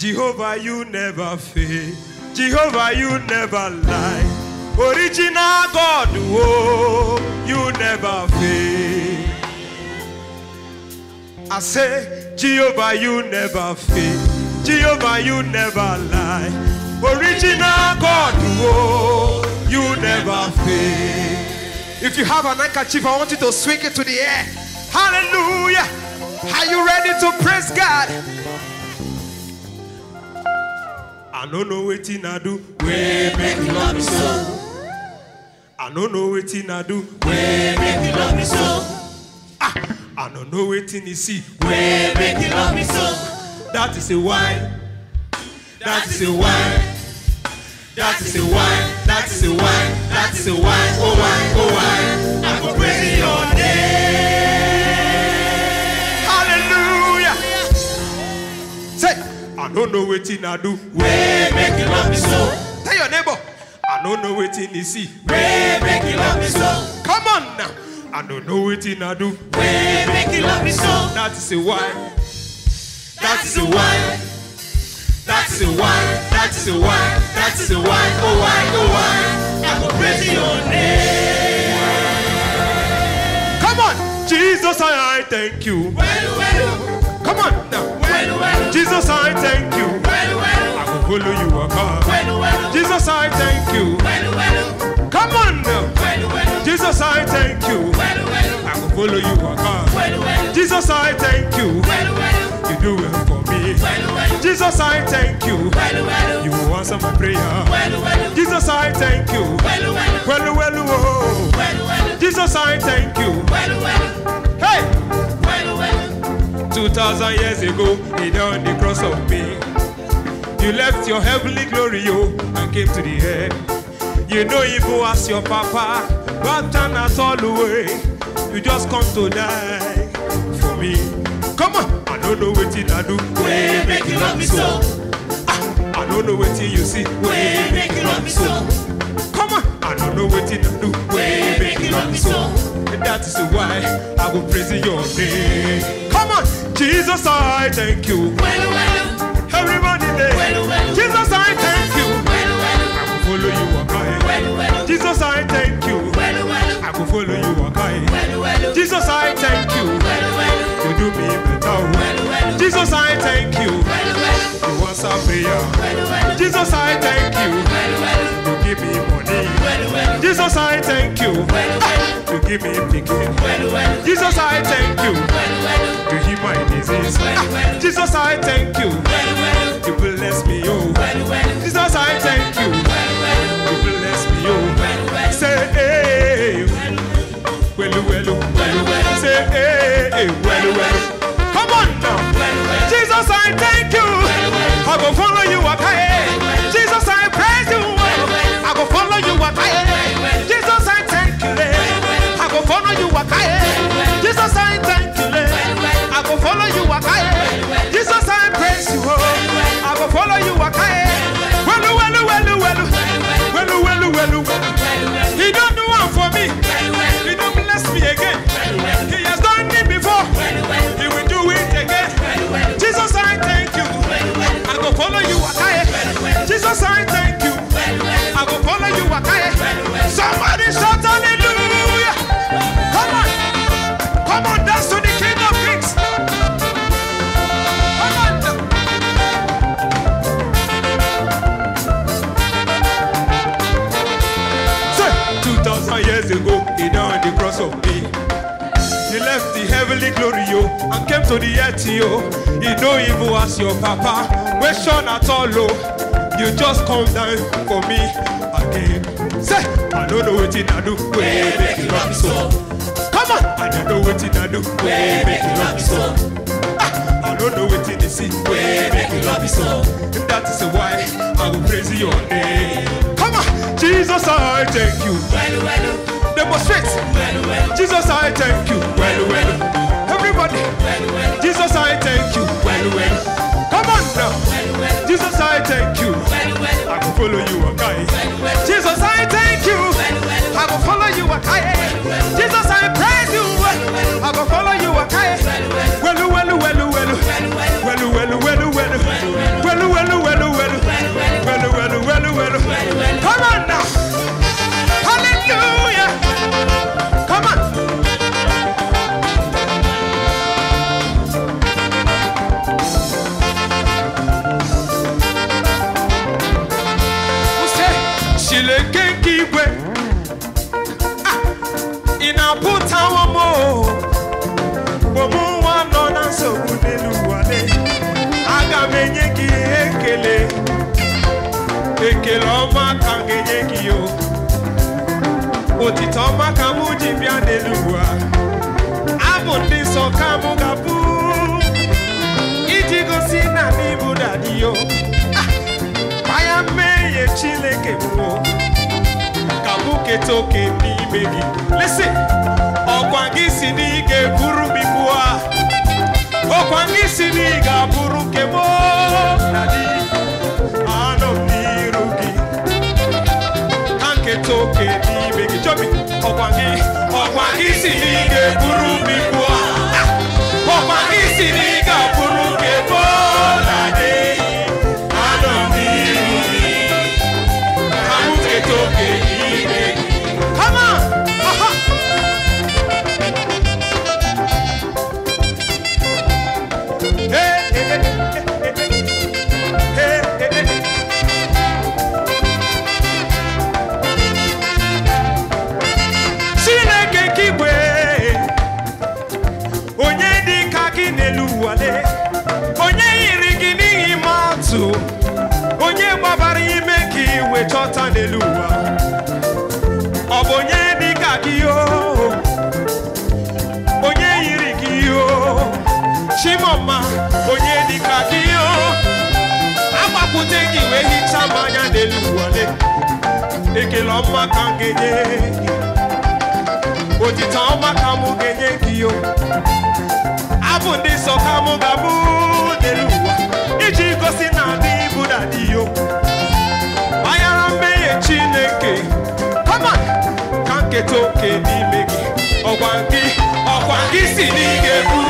Jehovah, you never fail. Jehovah, you never lie. Original God, oh, you never fail. I say, Jehovah, you never fail. Jehovah, you never lie. Original God, oh, you never fail. If you have an handkerchief, I want you to swing it to the air. Hallelujah. Are you ready to praise God? I don't know wetin I do. Wey make you love me so. I don't know wetin I do. Wey make you love me so. Ah, I not know wetin you see. Wey make you love me so. That is a why. That is a why. That is a why. That is a why. That is a why. Oh why. Oh why. I go pray. I don't know waiting I do. Way make it love me so. Tell your neighbor, I don't know what waiting you see. Way make it love me so. Come on now. I don't know waiting I do. Way make it love me so. That is a why. That is a why. That's the why, that's the why, that's the why, oh why, oh why, I will praise your name. Come on, Jesus, I, I thank you. Well, well. Come on now. Jesus, I thank you. I will follow you God. Jesus, I thank you. Come on now. Jesus, I thank you. I will follow you God. Jesus, I thank you. You do well for me. Jesus, I thank you. You answer my prayer. Jesus, I thank you. Well, well. Well, oh. Jesus, I thank you. Hey. Well, well. 2,000 years ago, he nailed the cross of me. You left your heavenly glory, oh, and came to the earth. You know evil as your papa, but turn us all away. You just come to die for me. Come on, I don't know what I do. We make you love me so. I, ah, I don't know what you see. We make you love me so. Come on, I don't know what I do. We make you love me so that is why I will praise your name. Come on, Jesus, I thank you. Well, well, Everybody there. Well, Jesus, I thank you. Well, well, I will follow you, Well, well, Jesus, I thank you could follow you, okay? Well, well, Jesus, I thank you. Well, you do me better. Jesus, I thank you. You answer prayer. Jesus, I thank you. You give me money. Jesus, I thank you. You give me picking. Jesus, I thank you. You heal my disease. Jesus, I thank you. You bless me, oh. Jesus, I thank you. The eto, yo. You don't even ask your papa. Question at all, yo. You just come down for me again. Say, I don't know what to do. Way make you love so. Come on, I don't know what to do. Way make you love so. Ah, I don't know what to it is. Way make you love so. And that is why I will praise your name. Come on, Jesus, I thank you. Well, well, demonstrate. Well, well. Jesus, I thank you. Well, well. well. ị na-apụtawo m mgbomụ nwa nọ na nsogbu n'elu ụwa aga m enye gị ekele ekele ọma ka m ga-enye gị o otito ọma ka mụ ji bịa n'elu ụwa abụ ndị nsọ ka mụ ga-abụ iji gosi na n'ịbụ dadiyo aya mmehie Chineke bụ oketoke n'ime gị lesi ọkwa gị si na ị ga-eburu m ibu a ọkwa gị si na ị ga-abụrụ nke m na di anọ m n'iru gị na nketa oke n'ime gị jọbi ọkwa gị ọma ka m ga-enye gị otita ọma ka m ga-enye gị yo abụ ndị nsọ ka mụ ga-abụ dere ụwa iji gosi na adị ibu na dị yo manyara mmehie Chineke kama ka nketa oke n'ime gị ọkwa gị ọkwa gị si n'ige buru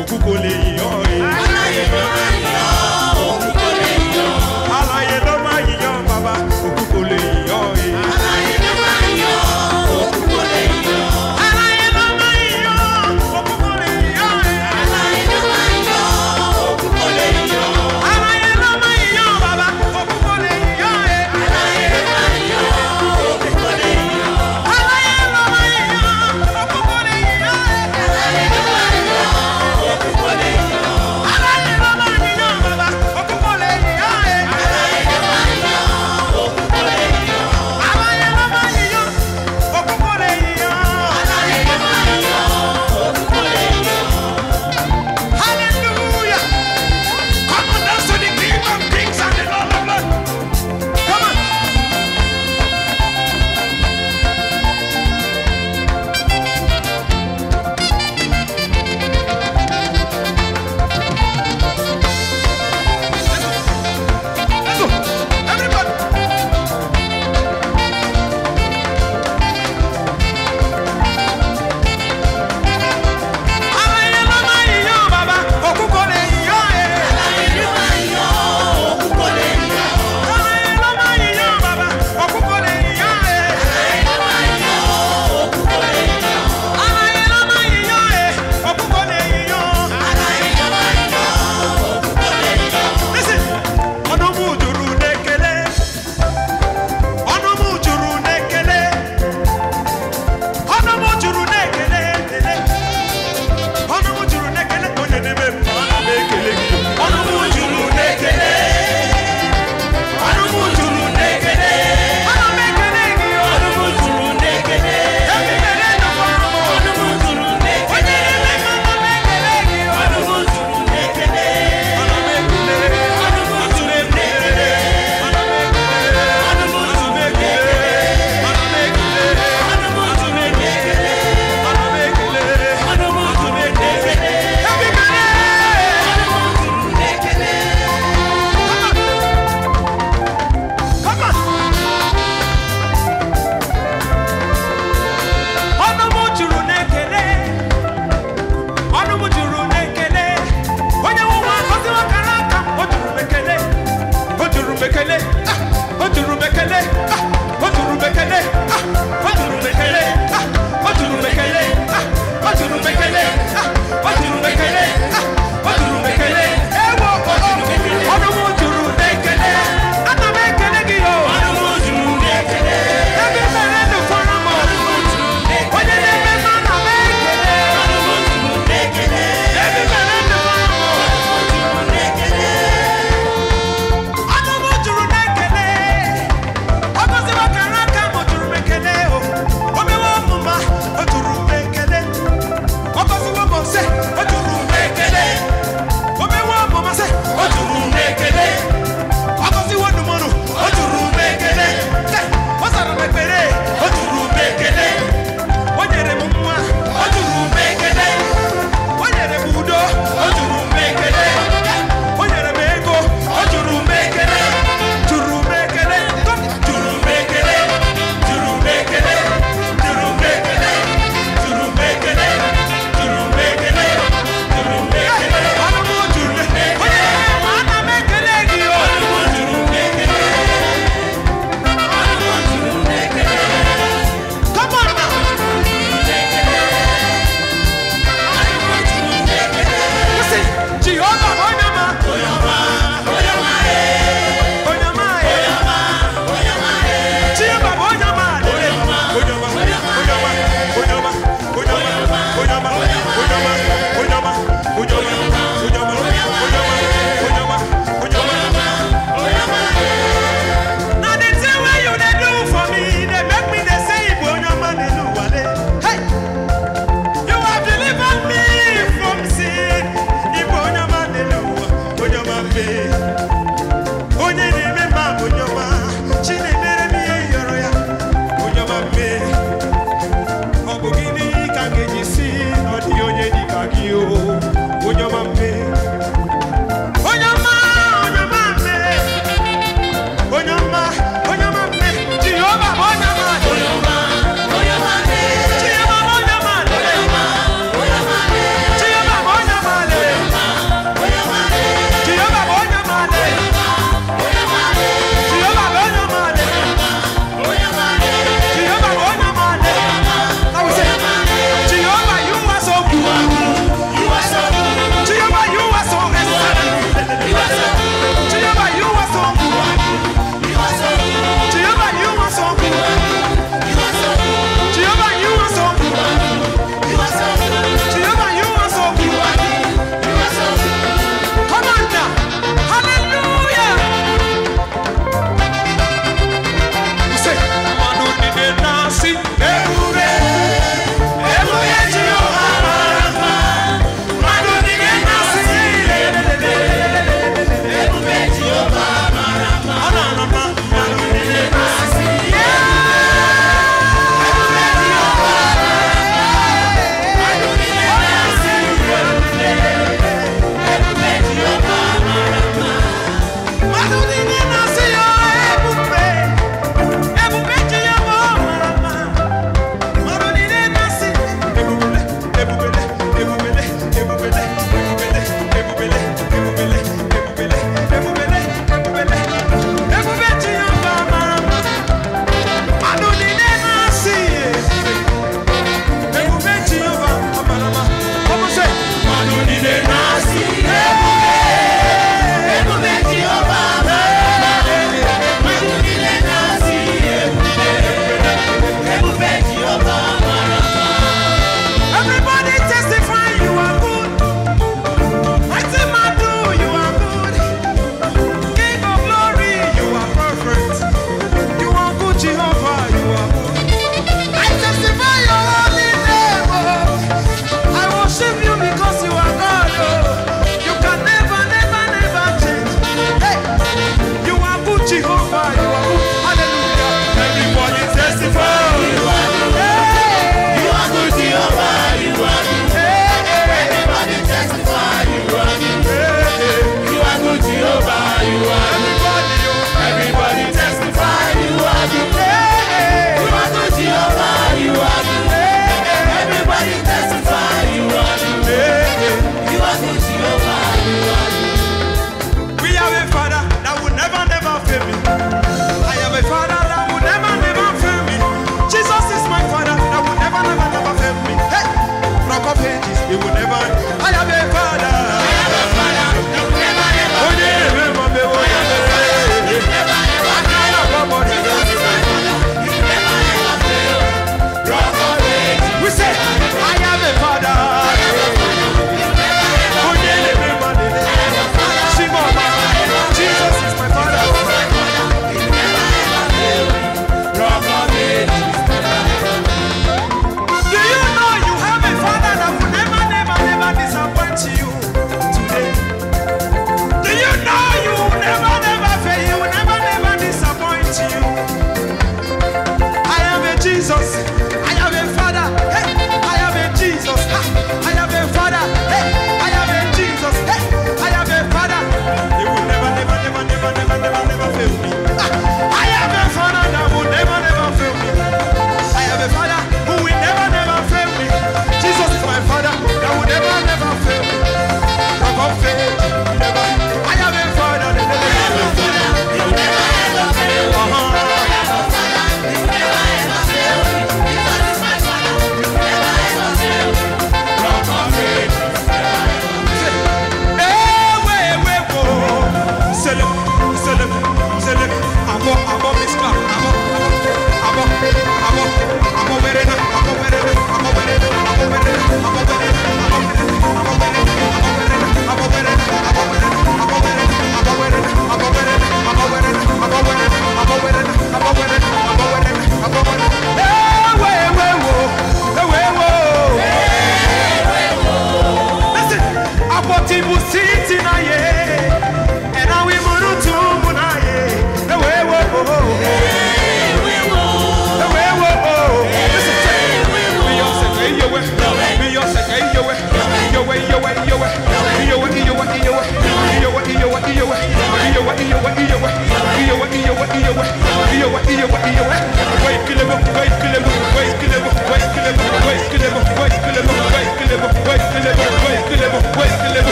òkú kò lè yọ ẹ. ló máa ń